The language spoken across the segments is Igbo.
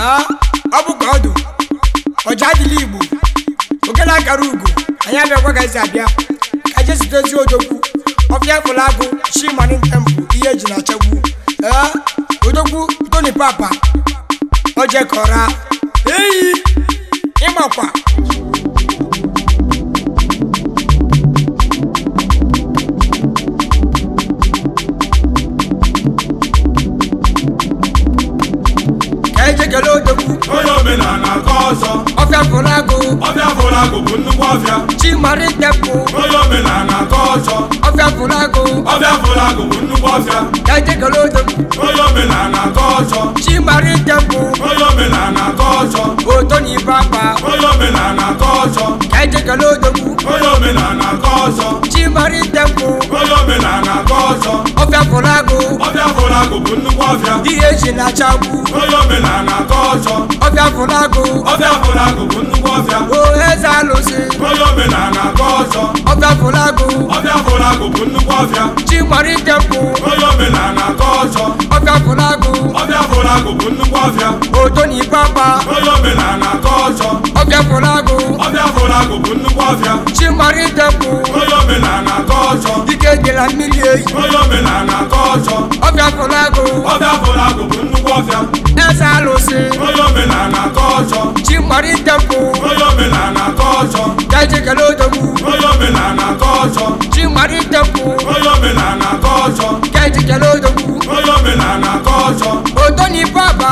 Ah, ọ bụkwa ọdụ ọja adịla igbo okele akara ugo anyị abịagwagazi abịa ka je zutezi odogwu ọfịa fụla agụ chimani tempụ ihe eji na-achagbu ee ah, odogwu toni papa ojekọra eyi ịmakwa onye omenala ka ọzọ ọbịa fụrụ agụ ọbịa fụrụ agụ bụ nnukwu ọbịa chimarikpepụ onye omenala ka ọzọ ọbịa fụrụ agụ ọbịa fụrụ agụ bụ nnukwu ọbịa dajegolodo onye omenala ka ọzọ chimarikpepụ onye omenala ka ọzọ otonibeakpa onye omenala ka ọzọ dajegolodogwu onye omenala ka ọzọ chimarikpepụ onye omenala ka ọzọ ọbịa fụrụ agụ ọbịa fụrụ agụ bụ nnukwu ọbịa ihe eji na-achagbu onye omenala ọchọ ọbịa fụlagụ ọbịa fụlagụ bụ nnukwu ọbịa o eze alụsị onye omenala ka ọzọ ọbịa fụlagụ ọbịa fụlagụ bụ nnukwu ọbịa chi gbara ike mkpụ onye omenala ka ọzọ ọbịa fụlagụ ọbịa fụlagụ bụ nnukwu ọbịa oto na ikpakpa onye omenala ka ọzọ ọbịa fụlagụ ọbịa fụlagụ bụ nnukwu ọbịa chi gbara ike mkpụ onye omenala ka ọzọ ike dịla mmiri eyi onye omenala ka ọzọ ọbịa fụlagụ ọbịa fụlagụ bụ nnukwu eze alụsị onye omenala ka ọzọ chi mgbari tempụ onye omenala ka ọzọ gaje kele odogwu onye omenala ka ọzọ chi mgbari tempụ onye omenala kele odogwu onye omenala baba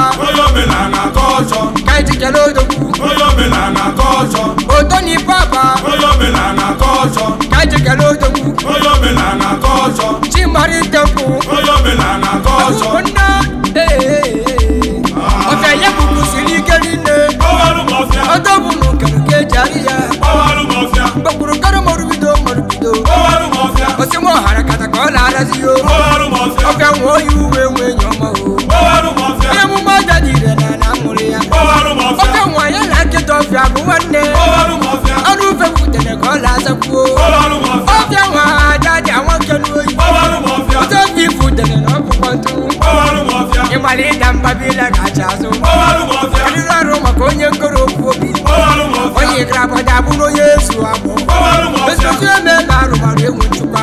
o nwe oyi uwe nwe nye ọma o onye emume ọja dị ire na na mụrụ ya ya bụ nwanne ọrụ ufe ka ọ na-azakwuo ọfịa nwa ha ada dị anwa nke n'oyi ọtọ ofe ifutere na ọkpụkpọ ntụ ịgbara ịda mba bila azụ arịrị ọrụ maka onye nkoro okwu obi onye grabada bụrụ onye ezu agbụ ezuzu arụmarụ enwe nchukwa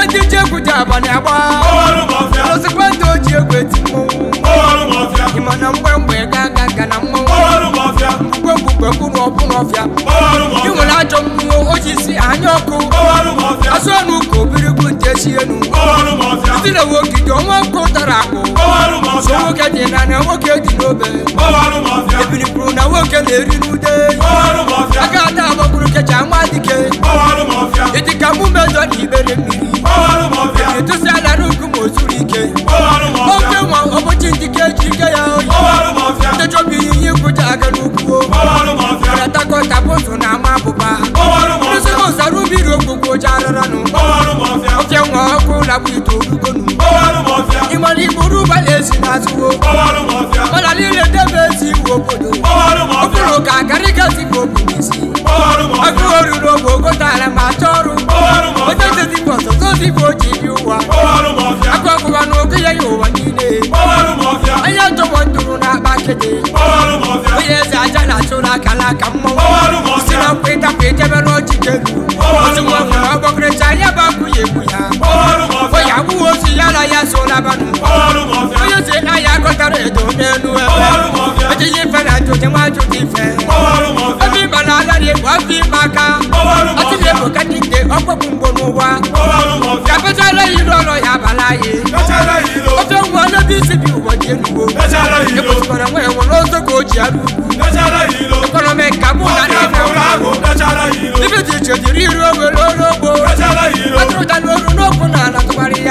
abalị agba osikwa ndị o ji egwu eti mmọnwụ ịma na mgbe mgbemgbe ga-aga ga na mmọnwụ mgbe mkpụrụ ọbụrụ ọfịa ị nwere ajọ mmụọ si anya ọkụ asụ ọnụ ka obirigbu nte si enu ndị na-ewe ogige ọnwa ọkụ tara akụ so nwoke dị na na nwoke dị n'obe ebiripụrụ na nwoke na-eri n'ude aka ada agbapụrụ kecha nwa dike ịdịka mụ mejọ na ibere mmiri na-agba ite olugonu ịmara igburu ụgbọala esi n'azụwo mana niile debe ezi ị obodo okpụrụ ka karịgaziga obodo isi akụghị oruru oge ogotara ma ọrụ onye jezibụ ọzọzọ dịbụ o ji iri ụwa akụ ọkụwa na oge ya ya ụwa niile onye jọgbọ na akpa kede onye eze aja na-achụ n'aka n'aka na nkwa ịtapụ ijebe n'ọchịchị elu abanụ onye si aya akọtara edo n'elu ebe ejiji ife na-ajụji ife na-alarị egwu afọ ime aka ọtụrụ egwu ka nke ọkpọkpụ mgbo n'ụwa ka pechara iru ọrụ ya abala anyị ofe nwa ọlọbi isi dị enugbo ekwesịkwara nwa ka o ji arụ ugwu ekọnọmi ka mụ na ife dị iche ọrụ ogbo ala tụgharị ya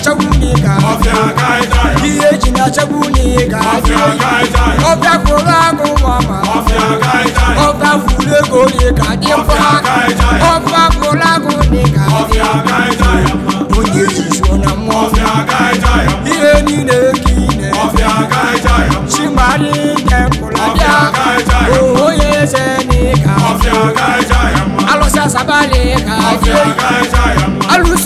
na-achagbu na ị ga ihe eji na-achagbu ga ọbịa kwụrụ agụ mama ọbịa furu ego na ị ga dị mkpa ọbịa kwụrụ agụ ga onye jizuo na mmụọ ihe niile ka ine chimari jepụla bịa onye eze ga alụsị asabali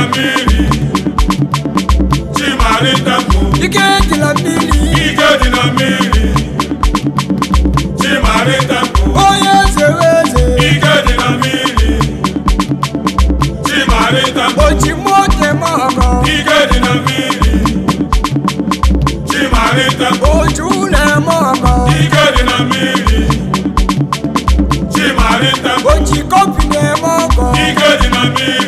mmiri Chimaritapu Ike dị na mmiri Ike dị na mmiri Chimaritapu Onye eze eze Ike dị na mmiri Chimaritapu Ojimoke mama Ike dị na mmiri Chimaritapu Ojune mama Ike dị na mmiri Chimaritapu Ojikọpi na-eme ọgọ Ike dị na mmiri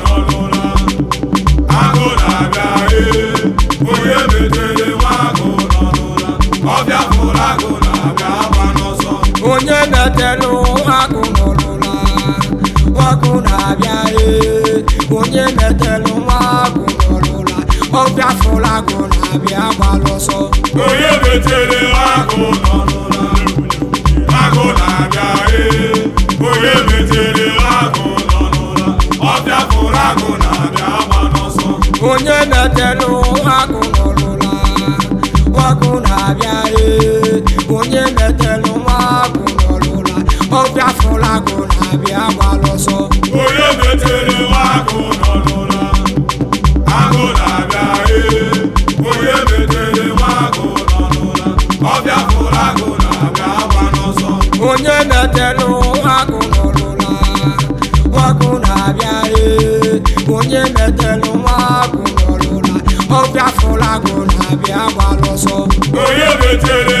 akụ na-abịa gbalụ ọsọ onye betere akụ akụ na-abịa e onye betere akụ nọ ọbịa pụrụ akụ na-abịa gba n'ọsọ onye betere akụ nọrụla akụ na-abịa e onye betere akụ nọrụla ọbịa pụrụ akụ na-abịa gbalụ ọsọ onye metelu ọkụ nọrụla ọkụ na-abịa onye metelu ọkụ nọrụla ọbịa fụlagụ na-abịa gbara onye metere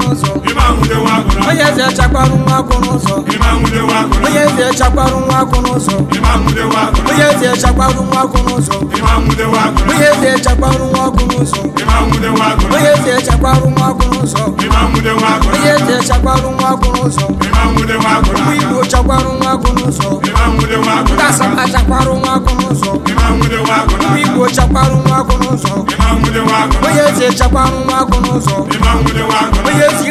onye eze chakwarụ nwa akwụ n'ụzọ onye eze chakwarụ nwa akwụ n'ụzọ onye eze chakwarụ nwa akwụ n'ụzọ onye eze chakwarụ nwa akwụ n'ụzọ onye eze chakwarụ nwa akwụ n'ụzọ onye eze chakwarụ nwa akwụ n'ụzọ igbo chakwarụ nwa akwụ n'ụzọ ndị asaba chakwarụ nwa akwụ n'ụzọ igbo chakwarụ nwa akwụ n'ụzọ onye eze chakwarụ nwa akwụ n'ụzọ onye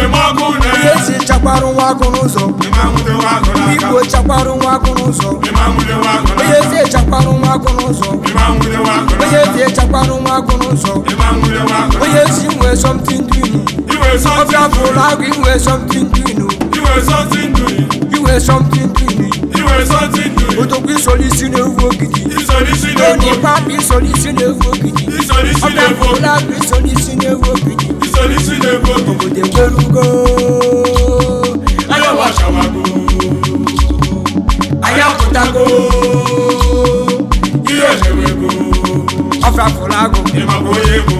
esi chakwarụ nwa agụ n'ụzọ igbo chakwarụ nwa agụ n'ụzọ onye ezi echakwarụ nwa agụ n'ụzọ onye ezi echakwarụ nwa agụ n'ụzọ onye ezi nwee somtin dinu ọbịa bụrụ agụ inwee somtin inwee somtin dinu odogwu isi na-ewu ogidi onye isi na-ewu ogidi ọbịa agụ isi na-ewu ogidi wachawago anya wachawago anya pụtago ihe mewego ọfịafụla agụ ịmakwa onye ego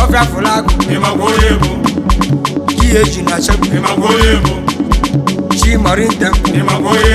ọfịafụla agụ ịmakwa onye ego ihe eji na chebụ ịmakwa onye ego chi marinta ịmakwa onye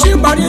She body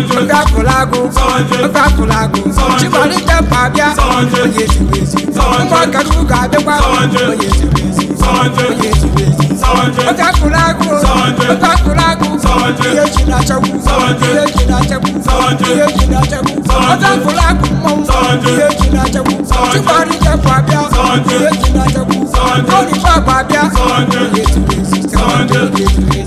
mkpakụlagụ mkpakụlagụ chibarikapa bịa onye ziri ezi mkpọkachukwu abịakwa onye ziri ezi onye ziri ezi mkpakụlagụ mkpakụlagụ ihe na na na na